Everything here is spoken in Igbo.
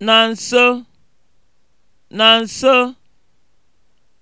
na nso na nso